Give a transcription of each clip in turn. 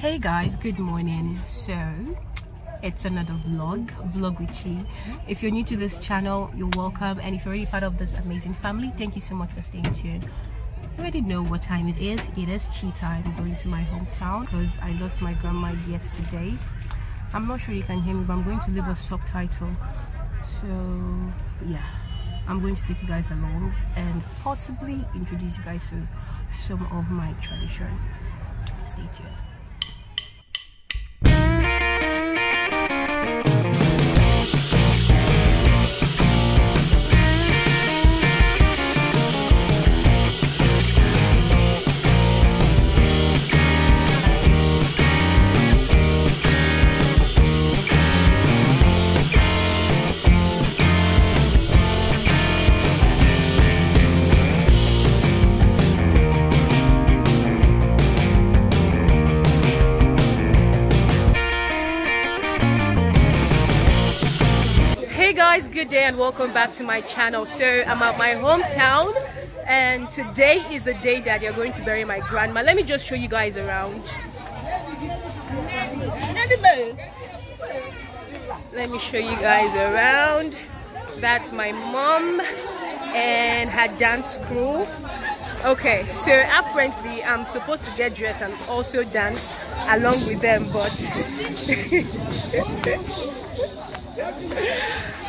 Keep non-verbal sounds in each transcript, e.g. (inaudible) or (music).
hey guys good morning so it's another vlog vlog with you. if you're new to this channel you're welcome and if you're already part of this amazing family thank you so much for staying tuned you already know what time it is it is tea time going to my hometown because i lost my grandma yesterday i'm not sure you can hear me but i'm going to leave a subtitle so yeah I'm going to take you guys along and possibly introduce you guys to some of my tradition. Stay tuned. guys good day and welcome back to my channel so i'm at my hometown and today is the day that you're going to bury my grandma let me just show you guys around let me show you guys around that's my mom and her dance crew okay so apparently i'm supposed to get dressed and also dance along with them but (laughs)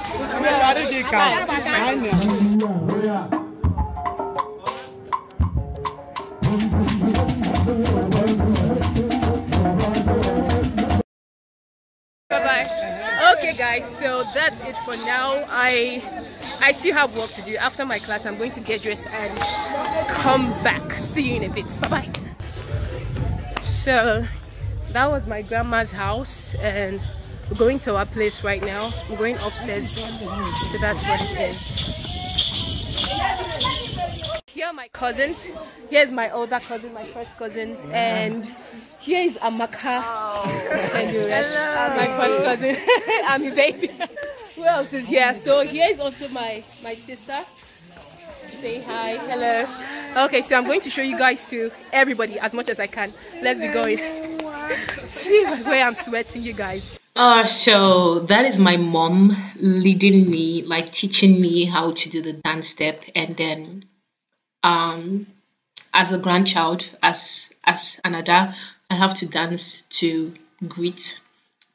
okay guys so that's it for now i i still have work to do after my class i'm going to get dressed and come back see you in a bit bye bye so that was my grandma's house and we're going to our place right now. We're going upstairs. So that's what it is. Here are my cousins. Here's my older cousin, my first cousin. Yeah. And here is Amaka. Oh. and Hello. My first cousin. (laughs) I'm your baby. (laughs) Who else is here? So here is also my, my sister. Say hi. Hello. Okay, so I'm going to show you guys to everybody as much as I can. Let's be going. (laughs) See where I'm sweating, you guys. Uh, so that is my mom leading me, like teaching me how to do the dance step, and then, um, as a grandchild, as as another, I have to dance to greet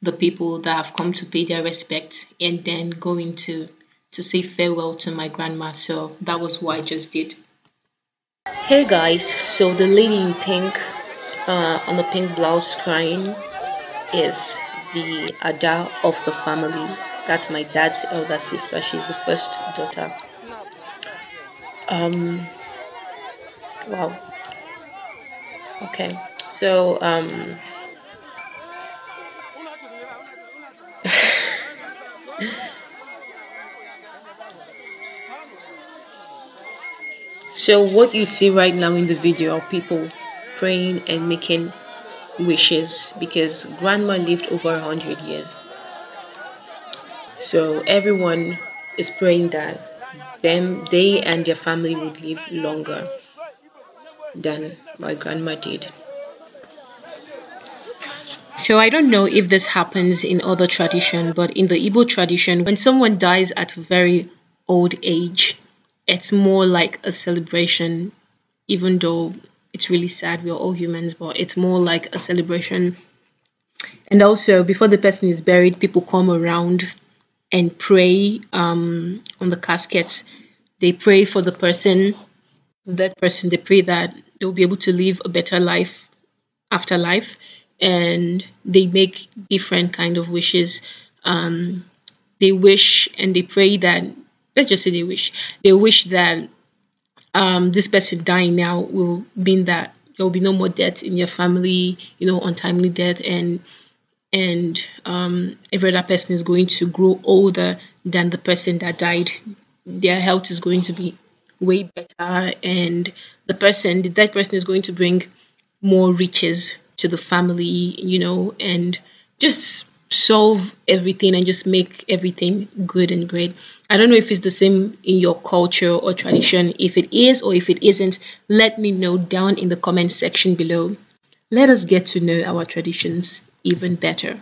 the people that have come to pay their respect, and then going to to say farewell to my grandma. So that was what I just did. Hey guys, so the lady in pink, uh, on the pink blouse crying, is the Ada of the family. That's my dad's elder sister. She's the first daughter. Um, wow. Okay, so um, (laughs) so what you see right now in the video are people praying and making wishes because grandma lived over 100 years. So everyone is praying that them, they and their family would live longer than my grandma did. So I don't know if this happens in other tradition, but in the Igbo tradition, when someone dies at a very old age, it's more like a celebration, even though it's really sad. We're all humans, but it's more like a celebration. And also, before the person is buried, people come around and pray um, on the casket. They pray for the person, that person. They pray that they'll be able to live a better life after life, and they make different kind of wishes. Um, they wish and they pray that. Let's just say they wish. They wish that um, this person dying now will mean that there will be no more death in your family, you know, untimely death, and and um, every other person is going to grow older than the person that died. Their health is going to be way better, and the person, the dead person, is going to bring more riches to the family, you know, and just solve everything and just make everything good and great. I don't know if it's the same in your culture or tradition. If it is or if it isn't, let me know down in the comment section below. Let us get to know our traditions even better.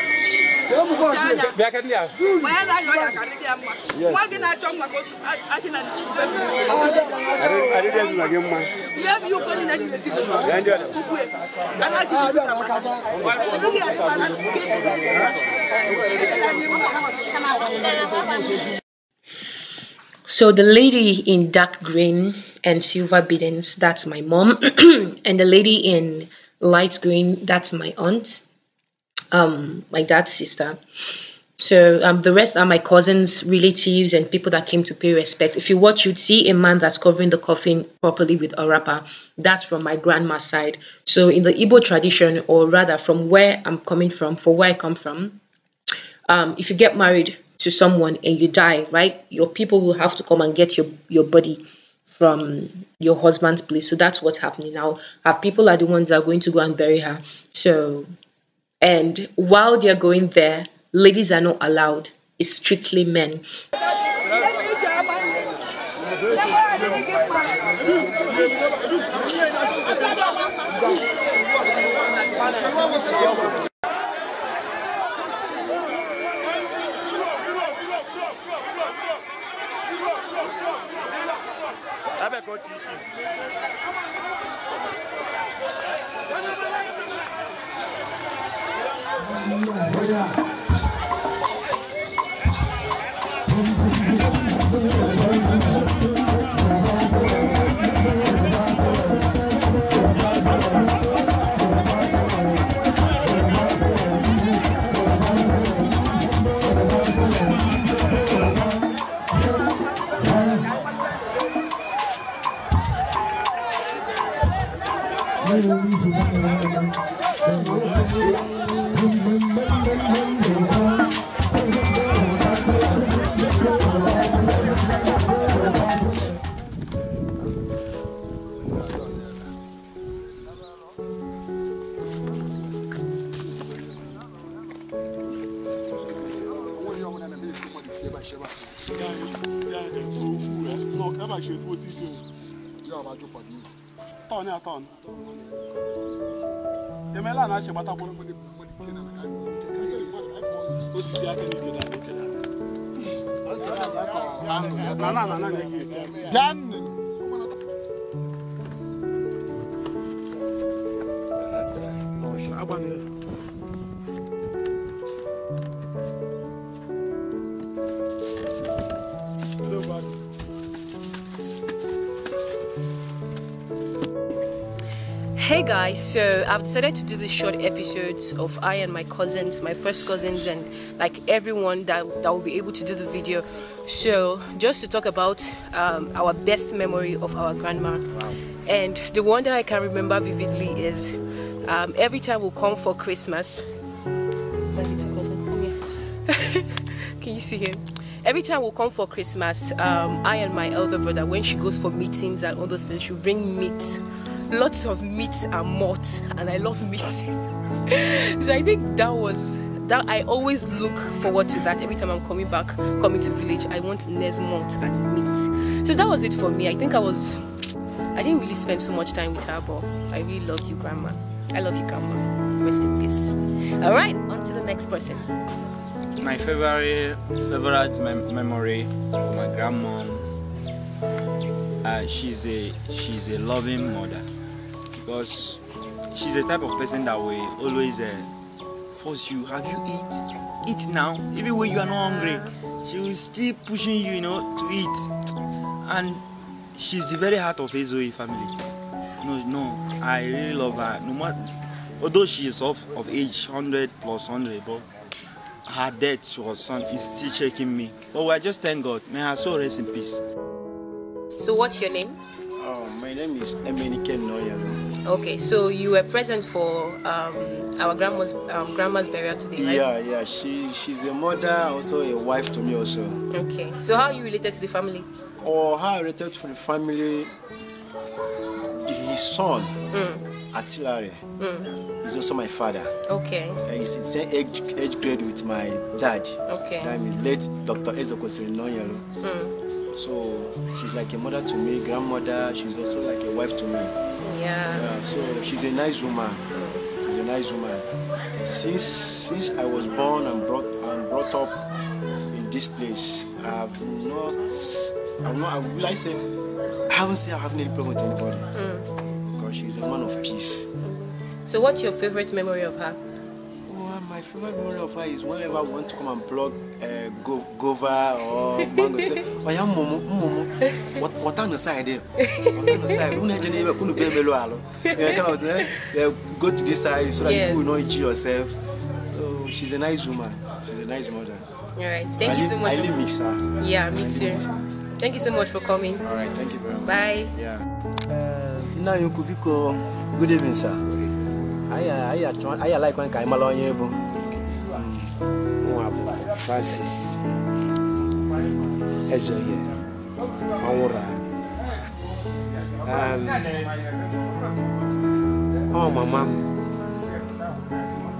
So the lady in dark green and silver biddens, that's my mom, (clears throat) and the lady in light green, that's my aunt um, my dad's sister. So um, the rest are my cousins, relatives, and people that came to pay respect. If you watch, you'd see a man that's covering the coffin properly with a wrapper. That's from my grandma's side. So in the Igbo tradition, or rather from where I'm coming from, for where I come from, um, if you get married to someone and you die, right, your people will have to come and get your, your body from your husband's place. So that's what's happening now. Her people are the ones that are going to go and bury her. So and while they're going there, ladies are not allowed. It's strictly men. 去医院瞧 ton emela na shi mata kwuru kwuru kwuru tie na ka o si ti aka ni da ni ke da na na na na ne ke tie dan agbanyeghị Hey guys, so I've decided to do these short episodes of I and my cousins, my first cousins, and like everyone that, that will be able to do the video. So, just to talk about um, our best memory of our grandma. And the one that I can remember vividly is um, every time we come for Christmas. (laughs) can you see him? every time we come for Christmas, um, I and my elder brother, when she goes for meetings and all those things, she'll bring meat lots of meat and malt and I love meat. (laughs) so I think that was that I always look forward to that every time I'm coming back, coming to village. I want Nes malt and meat. So that was it for me. I think I was I didn't really spend so much time with her, but I really loved you, Grandma. I love you, Grandma. Rest in peace. All right, on to the next person. My favorite favorite mem memory, my grandma. Uh, she's a she's a loving mother because she's the type of person that will always uh, force you. Have you eat? Eat now. Even when you are not hungry, she will still pushing you, you know, to eat. And she's the very heart of Ezoe family. No, no, I really love her. No matter, although she is of, of age 100 plus 100, but her death to her son is still shaking me. But we are just thank God. May her soul rest in peace. So what's your name? Oh, my name is Emenike Noy. Okay, so you were present for um, our grandma's um, grandma's burial today, right? Yeah, yeah. She she's a mother, also a wife to me, also. Okay. So how you related to the family? Or oh, how I related to the family? His son, mm. Atilare, mm. is also my father. Okay. he's in same age, age grade with my dad. Okay. That is late Dr. Ezoko Sirinonyalo. Mm. So she's like a mother to me, grandmother. She's also like a wife to me yeah. So she's a nice woman. She's a nice woman. Since since I was born and brought and brought up in this place, I've not. I'm not. I will I say. I haven't seen I have any problem with anybody. Mm. Because she's a woman of peace. So, what's your favorite memory of her? my favorite memory of her is whenever we want to come and plug uh, go gova or mango. Say, oh yeah, mumu, mumu. What what on the side there? What on the side? Who never knew couldn't be below alo. Kind of uh, go to this side so that yes. you will not injure yourself. So she's a nice woman. She's a nice mother. All right. Thank I you so much. I really miss her. Yeah, me I too. Thank you so much for coming. All right. Thank you very much. Bye. Yeah. Uh, now you could be called. Good evening, sir anyị alaghịkwa ka anyị mara onye bụ nwa Francis Ezeoye ọnwụrụ ọ um, oh, mama m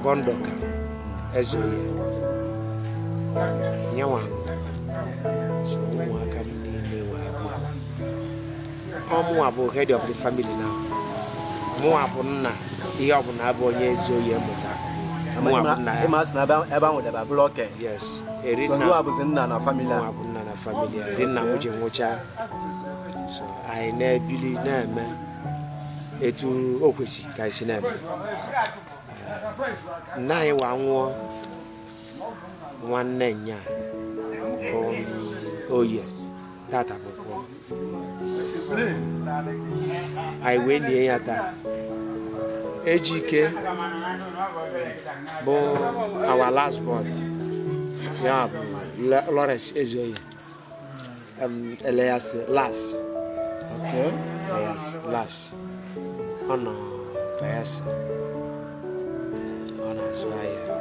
Bondoka Ezeoye nyewa so ụmụaka m niile wee abụọ head of the family now mụwa bụ nna ihe ọ bụla abụ onye ezi oyi na ebe ahụ debe bụrụ oke bụzi nna na famili a bụ nna na famili a rinna m ji nwụcha anyị na-ebili na-eme etu o kwesị ka anyị na-eme eh, nna anyị wa nwụọ nwanne nya oye tata pụpụ eh, anyị wee lie ya taa Ejike bụ our last born ya bụ Lawrence Ezeoye um, Elias Las Elias Las ọ nọ Bayelsa ọ na-azụ ahịa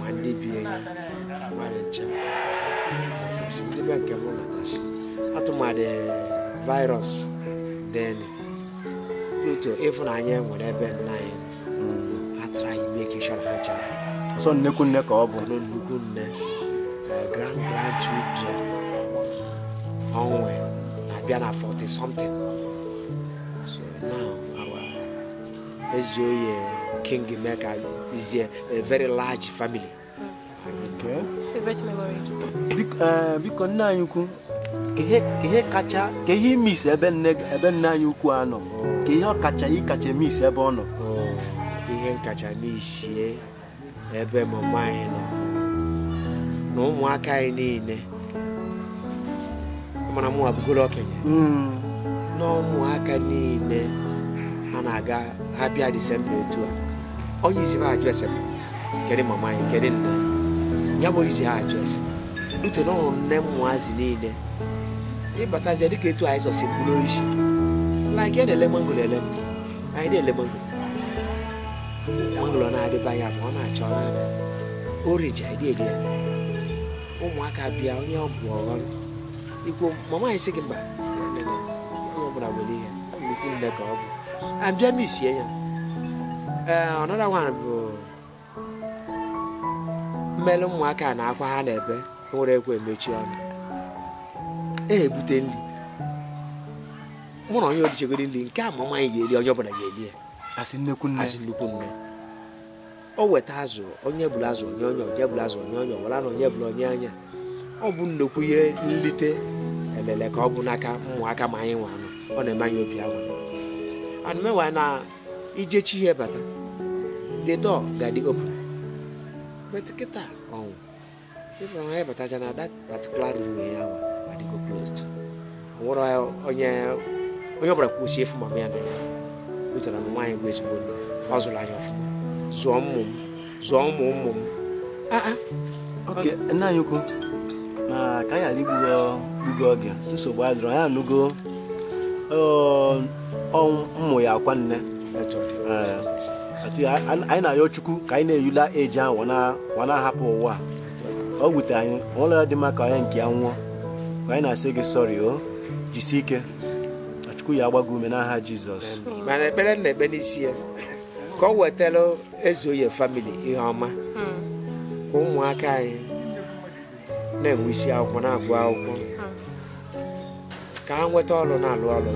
ma ndị bi enyi mmadụ nche natasi ndị be nke m natasi atụmadị virus deni due to ịfụnanya e nwere ebe nna anyị atara anyị meke shọra ha chapụ ọsọ nnekwu nne ka ọ bụ nnukwu nne eh, grand grandchildren onwe na-abịa na 40 something so now our Ezeoye eh, king meka is a very large family hmm. favorite memory eh, biko nne anyị ukwu ihe kacha ka ihe imisi ebe nne anyị ukwu nọ oh. nke ihe ọkacha ịkacha eme isi ebe ọ nọ ihe nkacha n'isie ebe mama anyị nọ na ụmụaka anyị niile mara mụ abụgoro okenye hmm. na ụmụaka niile ha na-aga ha bịa disemba etu a onye isi ha ajụ ese kedu mama anyị kedu nne ya bụ izi ha ajụ ese ute na ụmụ nne mụazi niile ịbatazie dịka etu anyị zọsi mkpụrụ isi like ike na-ele mangoro ele na-ele mangoro na ya ma ọ na achọ ọ na-ada oriji ụmụaka bịa onye ọ bụ ọghọrọ ikwu mama anyị sị gị mba onye ọ bụla nwere ihe ọ bụ abịa m ya ee ọnara nwa mmelụ ụmụaka na akwa ha na-ebe nwere ekwe emechi ọnụ nri mụ na onye orichegoro nri nke a ma nwaanyị ga-eri onye ọbụla ga-eri ya asị nnekwu nne asị nnukwu nne o weta azụ onye bụla azụ onye onye onye bụla azụ onye onye ọbụla na onye bụla onye anya ọ bụ nnukwu ihe nlite elele ka ọ bụ n'aka ụmụaka ma anyị nwe anụ ọ na-eme anyị obi aṅụ anụmewa na ijechi ihe bata the door ga-adị open but kịta ọnwụ ịfụrụ anyị batacha na that particular room ya ahụ adịgo closed ọ nwụrụ onye onye ọbụla kwusie efu ma m ya na ya wetara na nwaanyị bụ ezigbo ọ zụrụ anya ọfụma zụọ ụmụ m zụọ ụmụ ụmụ m ah, ah. nna anyị ukwu na ka anyị ala igbugo oge nsogbu anyị dụrụ anyị anụgo ụmụ ya akwa nne eh, anyị na-ayọ chukwu ka anyị na-eyula eji ahụ wana ahapụ ụwa ọ gwute anyị ụlọ ya dị mma ka onye nke ya nwụọ ka anyị na-asị gị sọrị o jisie ike Chukwu ya agba ume n'aha Jizọs mana ekpere na-ekpe n'isi ya ka ọ wetara Ezeoye famili ihe ọma hmm. ka ụmụaka anyị na-enwe isi akwụkwọ na-agụ akwụkwọ hmm. ka ha nweta ọrụ na-alụ ọrụ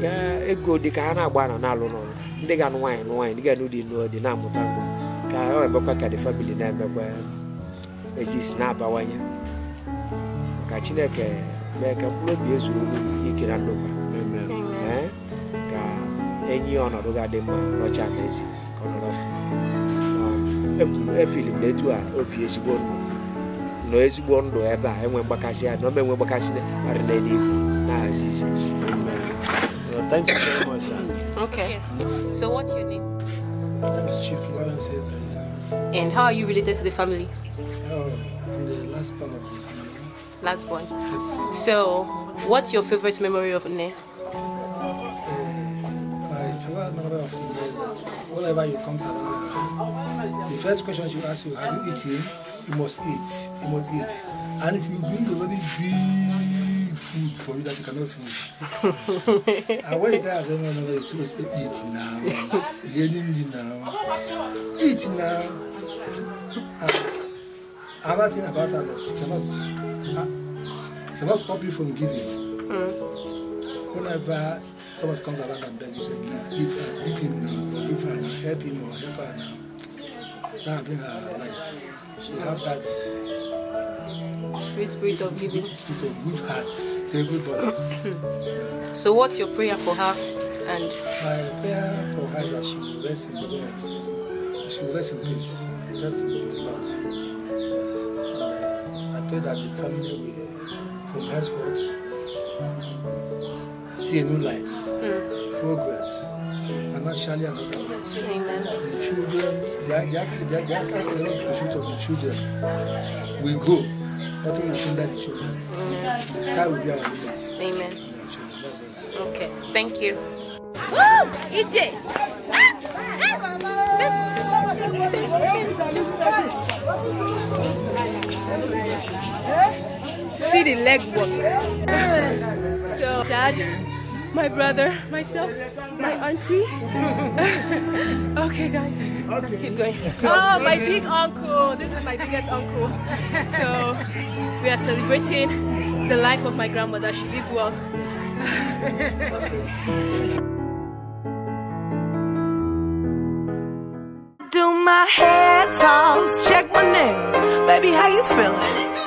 ka ego dị ka ha na-agba na na-alụ n'ọrụ ndị ga-anụ nwaanyị nwaanyị ndị ga-anụ dị nụ dị na-amụta nwa ka ha ebekwa ka dị famili na-emekwa ejisi na-abawanye ka Chineke mee ka mkpụrụ obi ezuo ike na ndokwa enyi ọnọdụ ga-adị mma n'ọcha n'ezi etu a obi ezigbo ndụ ezigbo ndụ ebe a enwe mgbakasị ya na enwe mgbakasị arị na Jizọs Thank you very much. Okay. So what's your name? is Chief Lawrence Cesar. And how are you related to the family? Oh, I'm the last born of the family. Last born. Yes. So what's your favorite memory of Ne? whenever you come to Atlanta, the first question she will ask you, have you eaten? You must eat. You must eat. And if you bring a very big food for you that you cannot finish, (laughs) and when you tell her, no, no, no, it's too much, eat now. Getting it now. Eat now. And another thing about her that she cannot, she cannot stop you from giving. Mm. Whenever someone comes around and begs you, say, give, give, give him now help him or help her now. That bring her life. She have that free spirit of giving. Spirit of good heart to everybody. (coughs) so what's your prayer for her and my prayer for her is that she will rest in the She will rest in peace. Rest the Lord. Yes. And uh, I pray that the family will from henceforth see a new light. Mm. Progress financially and otherwise. The children, they are their, their academic pursuit of the children We go, Nothing will hinder the children. The sky will be our limits. Amen. Okay, thank you. Woo! EJ! See the leg work. So, Dad my brother, myself, my auntie. (laughs) okay, guys, let's keep going. Oh, my big uncle. This is my biggest uncle. So we are celebrating the life of my grandmother. She lived well. Do my hair toss, check my nails. Baby, how you feeling?